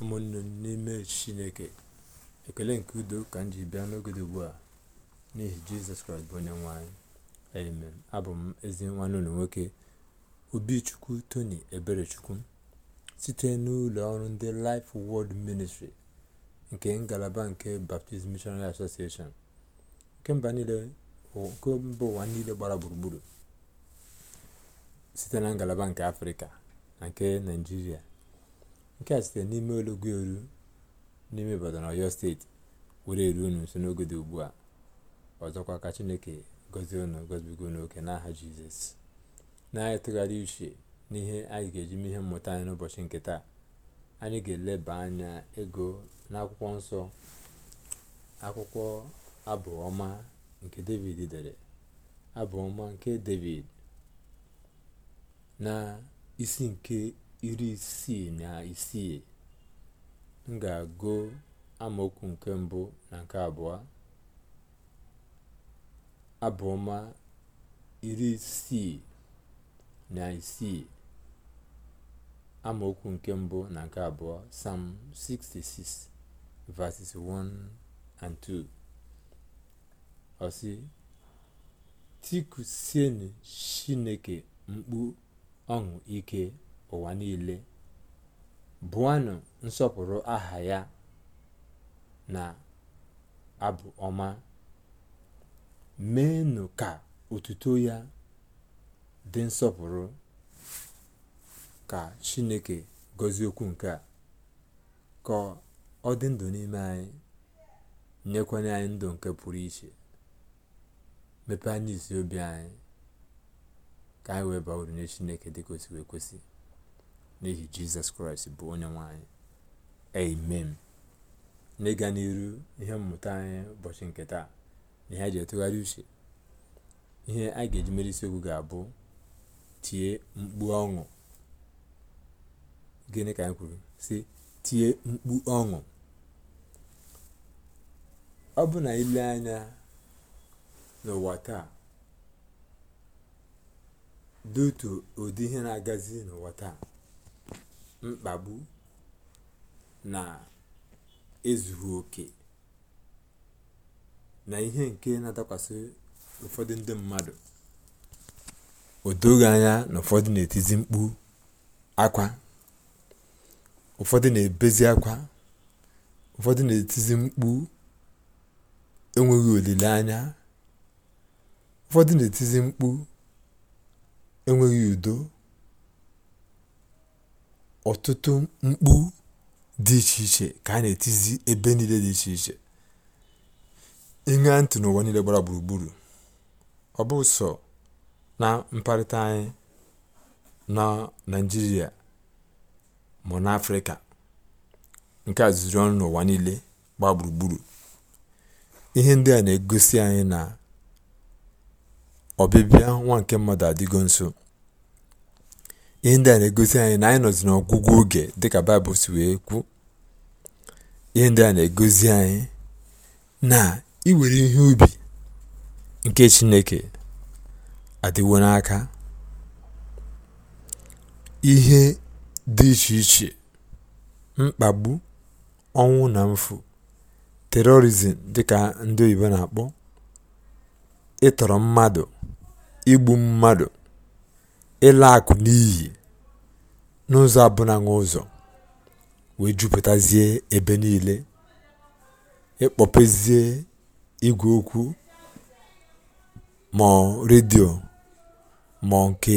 ụmụnne n'ime chineke ekele nke udo ka m ji bịa n'ogede ugbu a n'ihi jizọs kraịst bụ onye nwe amen abụ m ezi nwanne ụlọ nwoke obichukwu tony eberechukwu site n'ụlọ ọrụ ndị life world ministry nke ngalaba nke baptist missionary association nke mba ụwa niile gbara gburugburu site na ngalaba nke afrịka na nke naijiria nke a site n'ime ologo eru n'ime na oyo steeti were eru unu nso n'oge dị ugbu a ọzọkwa ka chineke gọzie unu gọzibigo unu oke n'aha jizọs na tụgharị uche n'ihe anyị ga-eji mee ihe mmụta anyị n'ụbọchị nke taa anyị ga-eleba anya ego n'akwụkwọ nsọ akwụkwọ abụọma nke david dere abụọma nke david na isi nke iri isii na isii m ga-agụ amaokwu nke mbụ na nke abụọ abụọma iri isii na isii amaokwu nke mbụ na nke abụọ sam 66 verses 1 and 2 ọsị tikusienụ chineke mkpu ọṅụ ike ụwa niile bụanụ nsọpụrụ aha ya na abụ ọma meenụ ka otuto ya dị nsọpụrụ ka chineke gọzie okwu nke a ka ọ dị ndụ n'ime anyị nyekwanye anyị ndụ nke pụrụ iche mepee anyị isi obi anyị ka anyị wee baa uru nye chineke dịka o si wee kwesị n'ihi jizọs kraịst bụ onye nwanyị amen n'ịga n'iru ihe mmụta anyị ụbọchị nke taa na ihe a ji etụgharị uche ihe a ga-eji mere isiokwu ga-abụ tie mkpu ọṅụ gịnị ka anyị kwuru si tie mkpu ọṅụ ọ bụ na ile anya n'ụwa taa dị otu ụdị ihe na-agazi n'ụwa taa mkpagbu na ezughị oke na ihe nke na-adakwasị ụfọdụ ndị mmadụ o anya na ụfọdụ na-etizi mkpu akwa ụfọdụ na-ebezi akwa ụfọdụ na-etizi mkpu enweghị olileanya ụfọdụ na-etizi mkpu enweghị udo ọtụtụ mkpu dị iche iche ka a na-etizi ebe niile dị iche iche ịṅa ntị n'ụwa niile gbara gburugburu ọ bụ sọ na mkparịta anyị na naijiria ma n'afrịka nke a zụrụ ọnụ n'ụwa niile gbaa gburugburu ihe ndị a na-egosi anyị na ọbịbịa nwa nke mmadụ adịgo nso ihe ndị a na-egosi anyị na anyị nọzi n'ọgwụgwụ oge dịka baịbụl si wee kwụ ihe ndị a na-egosi anyị na iwere ihe ubi nke chineke adịwo n'aka ihe dị iche iche mkpagbu ọnwụ na mfu terorizm dịka ndị oyibo na-akpọ ịtọrọ mmadụ igbu mmadụ ịla akụ n'iyi n'ụzọ abụna ụzọ wee jupụtazie ebe niile ịkpọpezie igwe okwu ma redio ma nke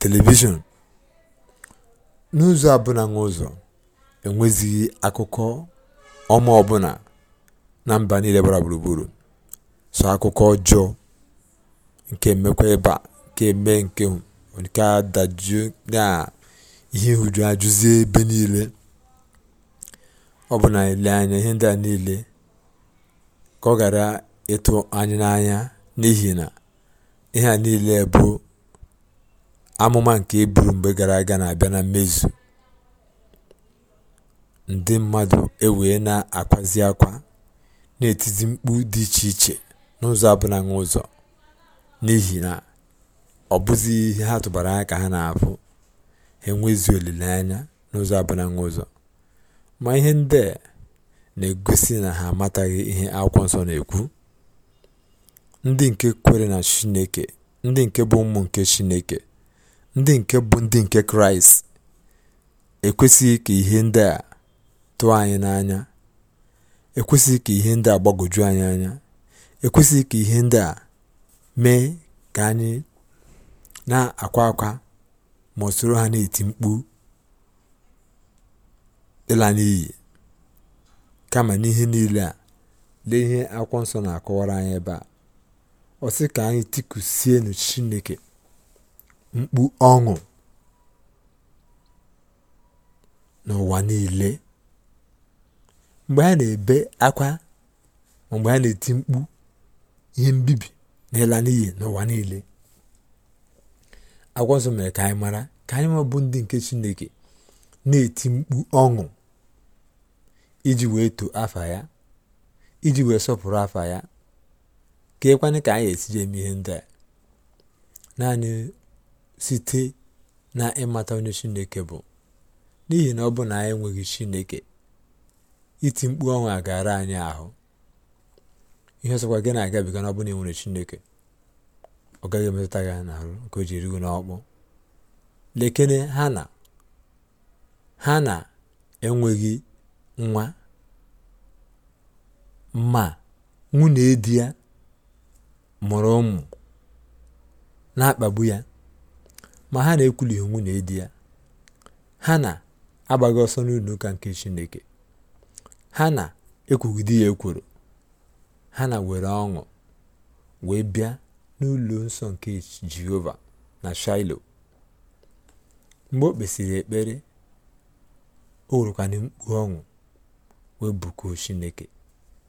telivishọn n'ụzọ abụna ụzọ enwezighị akụkọ ọma ọbụla na mba niile gbara gburugburu so akụkọ ọjọọ nke mmekwa ịba. nke eme nke a dajụọ na ihe nhụjuanya ajụzie ebe niile ọ na ile anya ihe ndị a niile ka ọ ghara ịtụ anya n'anya n'ihi na ihe a niile bụ amụma nke e buru mgbe gara aga na-abịa na mmezu ndị mmadụ ewee na-akwazi akwa na-etizi mkpu dị iche iche n'ụzọ abụnaghị ụzọ n'ihi na ọ bụzighi ihe ha tụbara anya ka ha na-afụ ha enweghịzi olileanya n'ụzọ abụnaghị ụzọ ma ihe ndị a na-egosi na ha amataghị ihe akwụkwọ nsọ na-ekwu ndị nke kwere na chineke ndị nke bụ ụmụ nke chineke ndị nke bụ ndị nke kraịst ekwesịghị ka ihe ndị a tụọ anyị n'anya ekwesịghị ka ihe ndị a gbagwoju anyị anya ekwesịghị ka ihe ndị a mee ka anyị na-akwa akwa ma ha na-eti mkpu ịla n'iyi kama n'ihe niile a lee ihe akwụkwọ nsọ na-akọwara anyị ebe a ọ sị ka anyị tikusienụ chineke mkpu ọṅụ n'ụwa niile mgbe ha na-ebe akwa mgbe ha na-eti mkpu ihe mbibi na n'iyi n'ụwa niile akwụkwọ nsọ mere ka anyị mara ka anyị ma bụ ndị nke chineke na-eti mkpu ọṅụ iji wee too afa ya iji wee sọpụrụ afa ya ka ịkwanye ka anyị esiji eme ihe ndị a naanị site na ịmata onye chineke bụ n'ihi na ọ bụ na anyị enweghị chineke iti mkpu ọnwụ gara anyị ahụ ihe ọsọkwa gị na-agabiga na enwere chineke ọ gaghị emetụta ya n'ahụ nke o ji n'ọkpụ lekene ha na ha na-enweghị nwa ma nwunye di ya mụrụ ụmụ na-akpagbu ya ma ha na-ekwulighị nwunye di ya ha na-agbaghị ọsọ n'ụlọ ụka nke chineke ha na-ekwugide ya ekworo ha na were ọṅụ wee bịa n'ụlọ nsọ nke jehova na shailo mgbe o kpesịrị ekpere o werekwana mkpu ọṅụ wee bụkuo chineke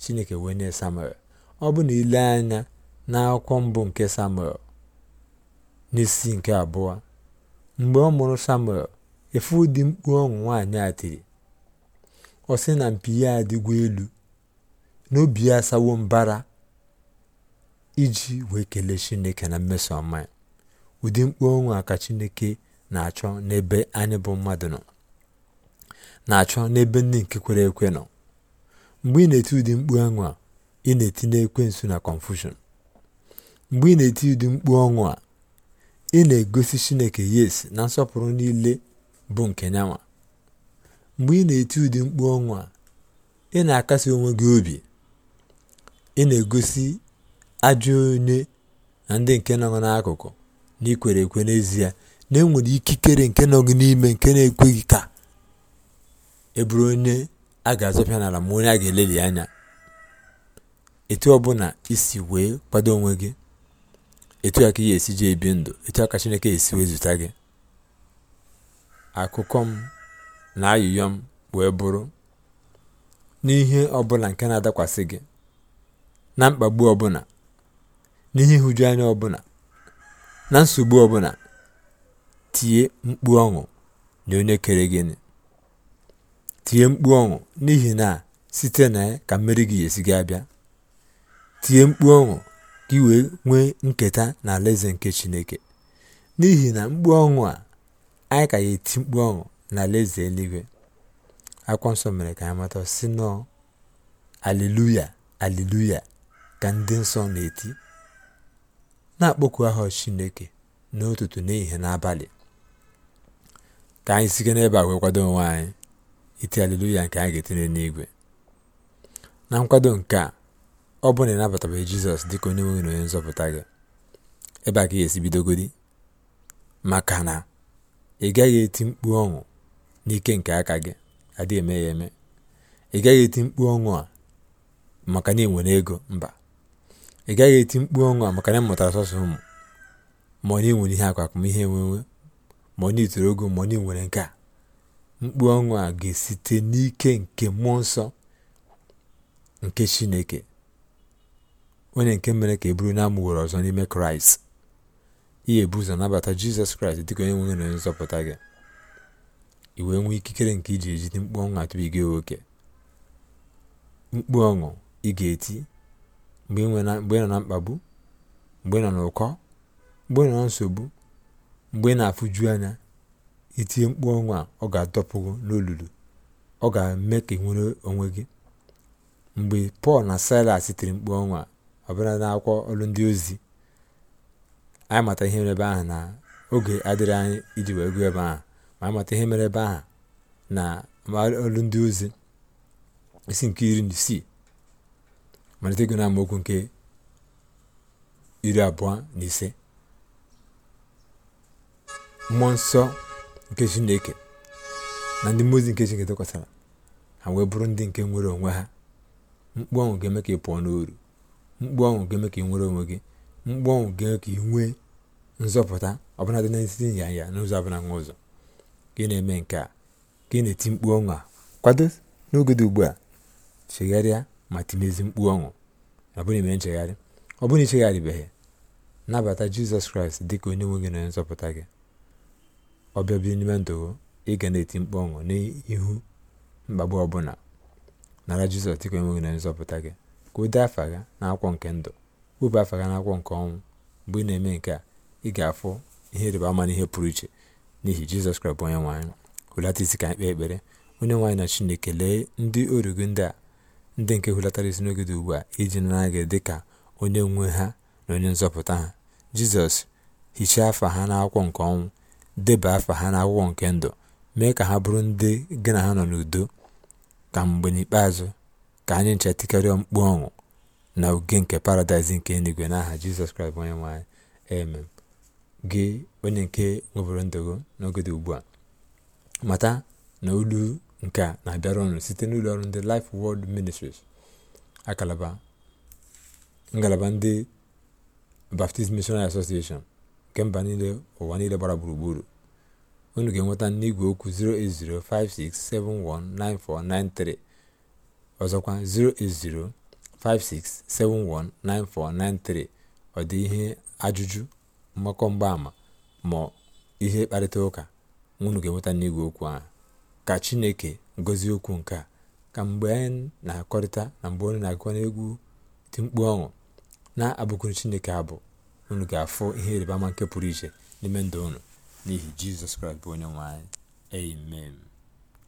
chineke wee nye samuel ọ bụ na ile anya na akwụkwọ mbụ nke samuel n'isi nke abụọ mgbe ọ mụrụ samuel efu ụdị mkpu ọṅụ nwaanyị a tiri ọ sị na mpi ya adịgwa elu n'obi ya asawo mbara iji wee kelee chineke na mmeso ọma ya ụdị mkpu ọnwa ka chineke na-achọ n'ebe anyị bụ mmadụ nọ na-achọ n'ebe ndị nke kwere ekwe nọ mgbe ị na-eti ụdị mkpu ọnwa ị na n'ekwe ekwensu na confusion mgbe ị na-eti ụdị mkpu ọnwụ a ị na-egosi chineke yes na nsọpụrụ niile bụ nke nyanwa mgbe ị na-eti ụdị mkpu ọnwụ a ị na-akasi onwe gị obi ị na-egosi ajọ onye na ndị nke nọ n'akụkụ na ikwere ekwe n'ezie na enwere ikikere nke nọ gị n'ime nke na-ekweghị ka e bụrụ onye a ga-azọpịa n'ala ma onye a ga-eleli anya etu ọbụla isi wee kwado onwe gị etu a ka ị esi ji ebi ndụ etu a ka Chineke esi wee zụta gị akụkọ m na ayụyọ m wee bụrụ n'ihe ọbụla nke na-adakwasị gị na mkpagbu ọbụla n'ihe nhụjuanya ọbụla na nsogbu ọbụla tie mkpu ọṅụ na onye kere gịnị tie mkpu ọṅụ n'ihi na site na ka mmeri gị esi gị abịa tie mkpu ọṅụ ka ị wee nwee nketa na alaeze nke chineke n'ihi na mkpu ọṅụ a anyị ka ya eti mkpu ọṅụ na alaeze eluigwe akwụkwọ nsọ mere ka anyị mata si nọọ aleluya aleluya ka ndị nsọ na-eti na-akpọku aha Chineke n'ụtụtụ n'ehihie n'abalị ka anyị site n'ebe a wee kwado onwe anyị iti aleluya nke anyị ga-etinye n'igwe na nkwado nke a ọ bụ na ịnabatabeghị Jizọs dịka onye nwere na onye nzọpụta gị ebe a ka ị ga-esi bidogodi maka na ị gaghị eti mkpu ọṅụ n'ike nke aka gị adịghị eme ya eme ị gaghị eti mkpu ọṅụ a maka na ị nwere ego mba ị gaghị eti mkpu ọṅụ a maka na mụtara sọsọ ụmụ ma ọ na enwere ihe akwa ihe enwenwe ma ọ na itoro ogo ma ọ na enwere nke a mkpu ọṅụ a ga-esite n'ike nke mmụọ nsọ nke chineke onye nke mere ka e buru na amụgoro ọzọ n'ime kraịst ihe ebu ụzọ nabata jizọs kraịst dịka onye nwere onye nzọpụta gị i wee nwee ikikere nke iji ejide mkpu ọṅụ gị nwoke mkpu ọṅụ ị ga-eti mgbe ị nọ na mkpagbu mgbe ị nọ n'ụkọ mgbe ị nọ na nsogbu mgbe ị na-afụju anya itie mkpu ọnwa a ọ ga-adọpụ n'olulu ọ ga-eme ka ị nwere onwe gị mgbe pọl na silas tiri mkpu ọnwa ọbụla n'akwụkwọ ọrụ ndị ozi anyị mata ihe mere ebe ahụ na oge adịrị anyị iji wee gụọ ebe ahụ ma anyị mata ihe mere ebe ahụ na ọrụ ndị ozi isi nke iri na isii malite ego na nke iri abụọ na ise mmụọ nsọ nke chineke na ndị mmụọ ozi nke chineke tụkwasara ha wee bụrụ ndị nke nwere onwe ha mkpu ọnwụ ga-eme ka ị pụọ n'oru mkpu ọnwụ ga-eme ka ị nwere onwe gị mkpu ọnwụ ga-eme ka ị nwee nzọpụta ọbụla dị na nya ya n'ụzọ ọbụla nwa ụzọ gị na-eme nke a gị na-eti mkpu ọnwụ a kwado n'oge dị ugbu a chegharịa ma tinezi mkpu ọṅụ abụrụ ime nchegharị ọ bụrụ na ichegharịbeghị nabata jizọs kraịst dị ka onye nwe gị na onye nzọpụta gị ọbịa bịa n'ime ndụ ị ga na-eti mkpu ọṅụ n'ihu mkpagbu ọbụla nara jizọs dịka onye nwe gị na onye nzọpụta gị ka o dee afa gị n'akwụkwọ nke ndụ wepụ afa gị akwọ nke ọnwụ mgbe ị na-eme nke a ị ga-afụ ihe ịrịba ama na ihe pụrụ iche n'ihi jizọs kraịst bụ onye nwaanyị anyị isi ka anyị kpee ekpere onye nwe na chineke lee ndị oru ndị a ndị nke hulatara isi n'oge ugbu a iji nara gị dị ka onye nwe ha na onye nzọpụta ha jizọs hichaa afa ha n'akwụkwọ nke ọnwụ deba afa ha n'akwụkwọ nke ndụ mee ka ha bụrụ ndị gị na ha nọ n'udo ka mgbe n'ikpeazụ ka anyị nchetikọrịa mkpu ọṅụ na oge nke paradaịs nke eluigwe n'aha jizọs kraịst onye nwe anyị amen gị onye nke nweburu ndụgo n'oge ugbu a mata na olu nke a na-abịara ọnụ site n'ụlọ ọrụ ndị Life World Ministries akalaba ngalaba ndị Baptist Missionary Association nke mba niile ụwa niile gbara gburugburu unu ga-enweta n'igwe okwu 08056719493 ọzọkwa 08056719493 ọ dị ihe ajụjụ mgbakọ mgbaama ma ihe kparịta ụka unu ga-enweta n'igwe okwu ahụ ka chineke gọzie okwu nke a ka mgbe anyị na-akọrịta na mgbe onye na akọrịta n'egwu dị mkpu ọṅụ na-abụkwuru chineke abụ unu ga-afụ ihe ịrịba ama nke pụrụ iche n'ime ndụ unu n'ihi jizọs kraịst bụ onye nwe anyị amen